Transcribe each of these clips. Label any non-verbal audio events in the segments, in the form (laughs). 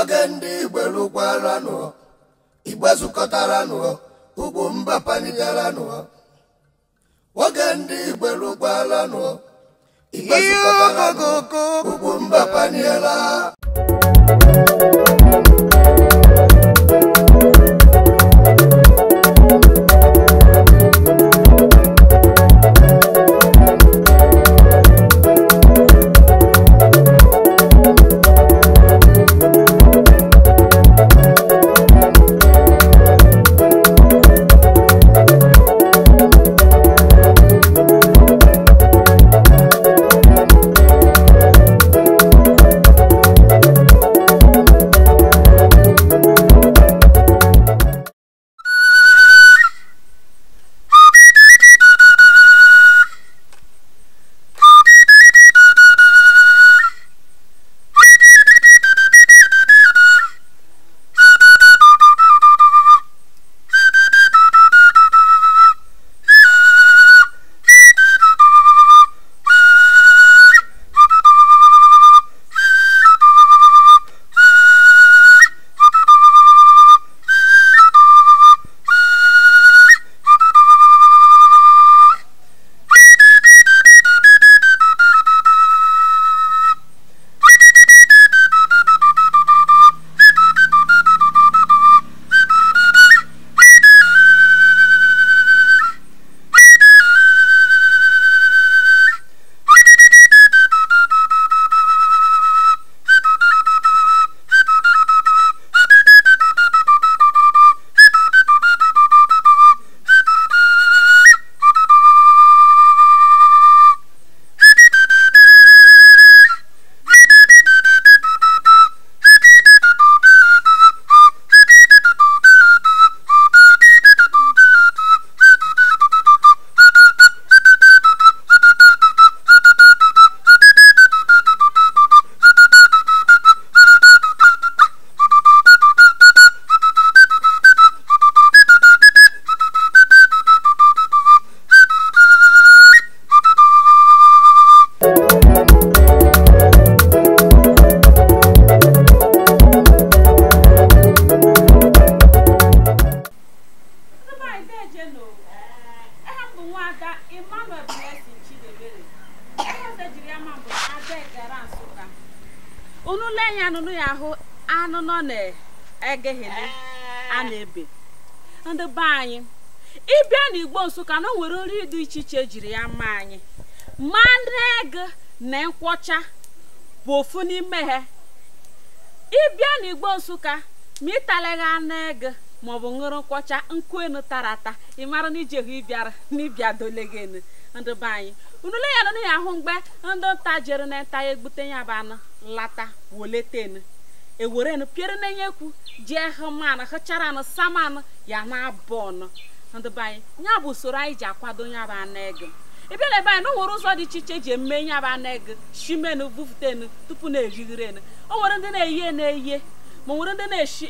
oge ndị igbo lụkwaranụ igbe zukọtaranụ ugwu mba panigaranụ oge ndị igbo lụkwaranụ igbe zukọtaranụ ugwu mba paniela Emmanuel Blessing Chidebere onye ọzọ jiri ama mbụ abịa gara Nsụka unu lee ya anụnụ ya ahụ anụ nọ na-egeghele a na-ebe ndị be anyị ịbịa n'Igbo Nsụka na o nwere nri dị iche iche jiri ya mma anyị mmanụ ego na nkwọcha bụ ofu n'ime ha ịbịa n'Igbo Nsụka ma ịtalaghị anụ ego maọbụ ṅụrụ nkwọcha nkwuenu tara ata ị mara na iji ehu ịbịara (laughs) na ịbịa dolegenu ndị be anyị unule ya nụ ya ahụ mgbe ndị nta jere na nta ya e egbute ya bụ anụ lata woletenu ewerenu piere na nyekwu jee hụmanụ hụchara anụ samanụ ya na abụ ọnụ ndị be anyị ya bụ usoro anyị ji akwado ya bụ anụ ego ị na ebe anyị na o nwere ụzọ dị iche iche ji eme ya bụ anụ ego shimenu bufutenu tupu na-erighirenu o nwere ndị na-eyi na-eyi ma nwere ndị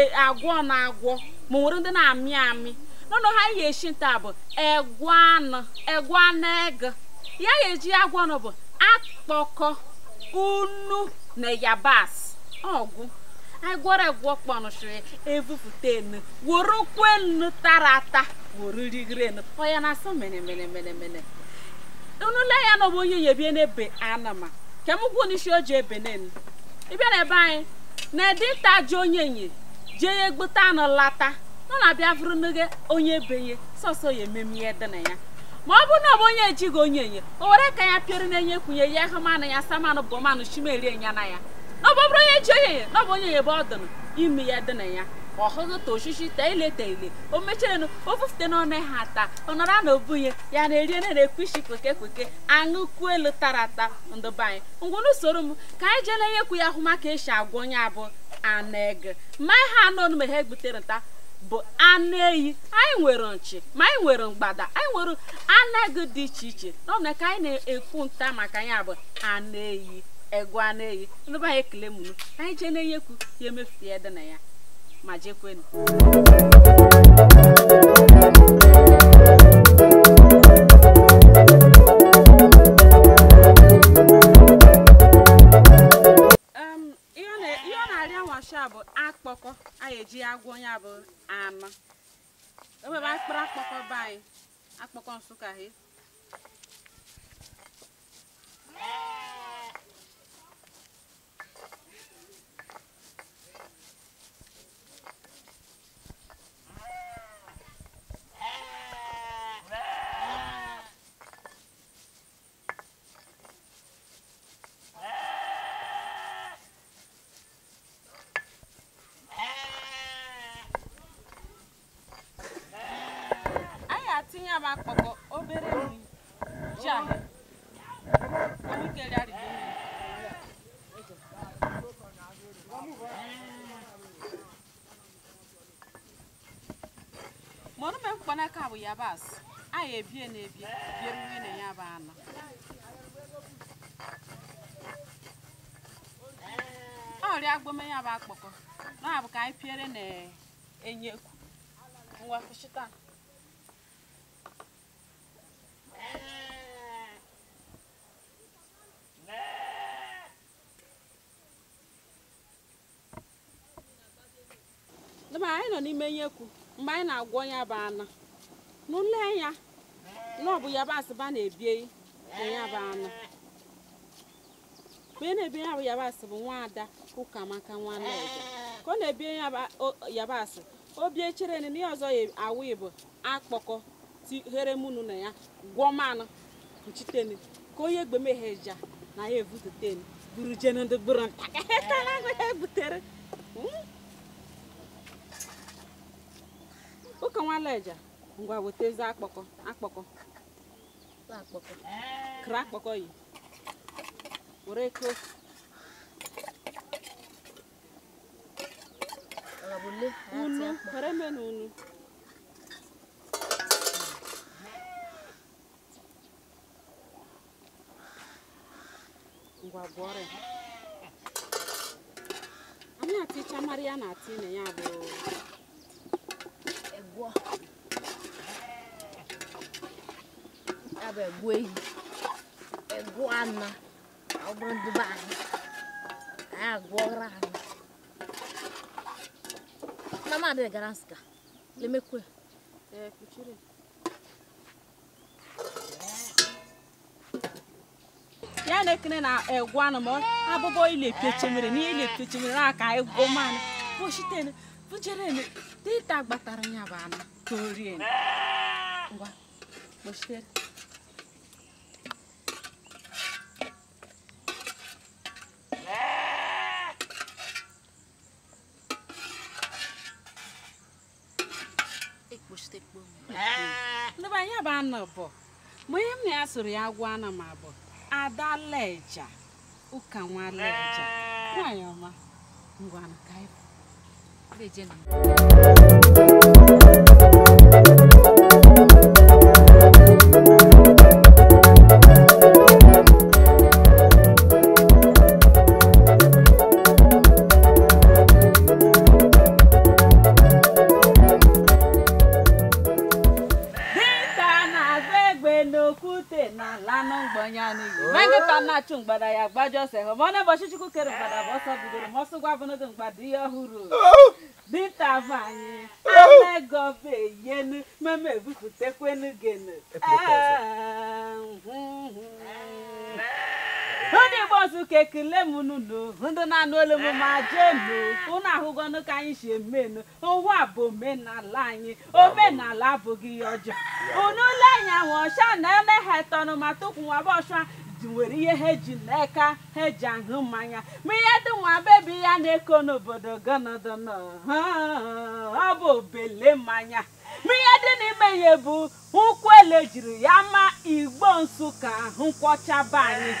e, na-agwọ na-agwọ ma nwere ndị na-amị amị n'ụlọ ha yi eshi nta bụ egwu anụ ego ya ga-eji agwọ ọnụ bụ akpọkọ unu na yabasị ọgwụ anyị gwọrọ egwu ọkpọnụchiri evupụta enu were nkwu enu tara ata were rigiri enu ọya na-asọ mene mene mene mene unule ya na ọbụ onye yebie n'ebe anama kemgwu n'isi o ji ebe n'enu ịbịa ebe anyị na-ede ịta ji onye nye jee ya egbute anụ lata ọ na-abịa bụrụ n'oge onye benye sọsọ ya ememe ihe dị na ya ma ọ bụrụ na ọ bụ onye ejighị onye enye o were ka ya pịọrọ na-enye kwunye ya ahụmanụ ya manụ bụ manụ chimerie nya na ya na ọ bụrụ onye ji onye enye na ọ bụ onye enye ebe ọ dịnụ ime ya dị na ya ọ hụghị ta oshishi ta ile ta ile o mechirenu ofufute bufute n'ọnụ ha taa ọ nọrọ na obunye ya na-eri na na-ekwu isi kweke kweke aṅụkwu elu tara ata ndụbanyị anyị ngwụna m ka anyị jee na-enyekwu ya ahụ maka esi agwa onye abụ ana ege mma ha anụ ọnụ ma ha egbutere nta bụ anụ ehi anyị nwere nchi ma anyị nwere mgbada anyị nwere anaghị dị iche iche n'ọbụ na ka anyị na-ekwu nta maka ya bụ anụ ehi egwu anụ ehi ndụba anyị ekele mụnụ anyị jee na-enye ekwu ya emefie dị na ya ma jekwenu ji agwọ ya bụ ama ewebe akpụrụ akpọkọ be anyị akpọkọ nsụka he ya bụ akpọkọ obere nri ji ahịa anyị kere arịgo mọrụme mkpanaka bụ yabasị anyị ebie na-ebie bie nri na ya bụ anụ ọrịa agbome ya bụ akpọkọ na-abụ ka anyị piere na enyekwu nwa kụchita mgbe anyị nọ n'ime nyekwu mgbe anyị na-agwọ ya bụ ana n'ụlọ ya n'ọbụ bụ yabasị ba na-ebie ya bụ ana mgbe ị na-ebie ya bụ yabasị bụ nwaada ụkamaka nwanne ka ọ na-ebie yabasị o bie chere na ihe ọzọ awụ ibu akpọkọ here munu na ya gwọ mmanụ kpuchitenu ka onye egbemeheja na ya ebututenu buru jenu ndị bụrụ ntakịrị ebutere ụka hmm? nwaleja ngwa wetezi akpọkọ akpọkọ kra akpọkọ yi were ko unu were menu unu ngwa gwọrọ ya anyị atịcha mara ya na atị na ya bụ egwọ ya bụ egwu ehi egwu anọ ọ bụrụ ndị be anyị anyị agwọrọ anyị na m adịghị gara nsịka lemekwe ee ekene na na-egwu egwana ma abụbọ ile pechemere na ile pechemere na aka ego mana pụchitene pụcherene dịta gbatara ya bụ anụ ka ndị bụ anya bụ anụ bụ mgbe ihe m na ya soro ya gwụ ana Ada Adaleja ụka nwa nwaleja nwanyị ọma ngwa na ka lanụ mgbanye n'ihi me nkịta mgbada ya gbajọse hụ ma ọ na-ụbọchị chukwu kere mgbada bụ ọsọ bidoro ma ọsọ gwa bụnụdụ mgbada ihe ọhụrụ dịta vanyị amegọbe yenu meme ebupụtakwenu genu ndị igbo ọzụka ekele m n'ụlọ ndị na-anụ olu m ma jenu ụnụ ahụgonụ ka anyị si emenu ụwa bụ omenala anyị omenala abụghị ihe ọjọọ unu ụlọ anyị ọcha na ele tọnụ ma tupu nwaba ọcha nwere ihe ha eji n'aka ha eji ahụ mmanya ma ihe dị nwa bebi ya na-eko n'obodo gonodono ọ bụ obele mmanya ihe dị n'ime ihe bụ nkwụ ele jiri ya ma igbo nsụka nkwọchaba anyị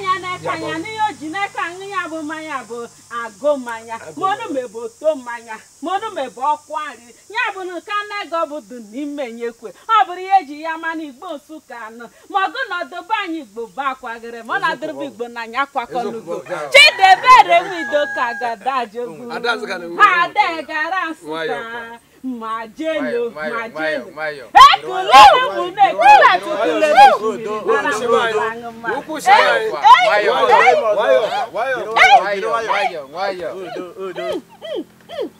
anya n'eke anya n'ihe o ji n'aka aṅụ ya bụ mmanya bụ agụ mmanya maọnụme bụ oto mmanya maọnụme bụ ọkụ nri ya bụ na nke bụ du n'ime nyekwe ọ bụrụ ihe eji ya ma na igbo nsụka anụ ma ọgụ na ọdọba anyị igbo bụ akwagịrị ma ọ na-adịrịbụ igbo na anya kwakọlugo chidebere nwido ka gadajogu ha adegara nsụka màá jẹ́ lo màá jẹ́ lo. ẹ kò lóore mú un náà nígbà tó kú lè lè fún mi lára wọn bá ń ma. ẹ ẹ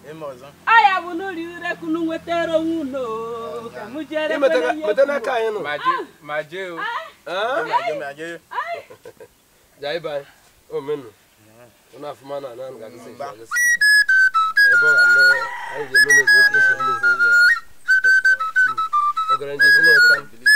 ẹ ẹ aya bụ n'ụlọ ire kunu nwetara onwe ụlọ ka mụ jere kwere ihe metana ka anyị nụ ma jee o ma jee ma jee jai bai o menu ụnụ afụma na anụ ga-agụsị ebe ọ ga-anụ Ay, yemin ediyorum. O grandezino tam.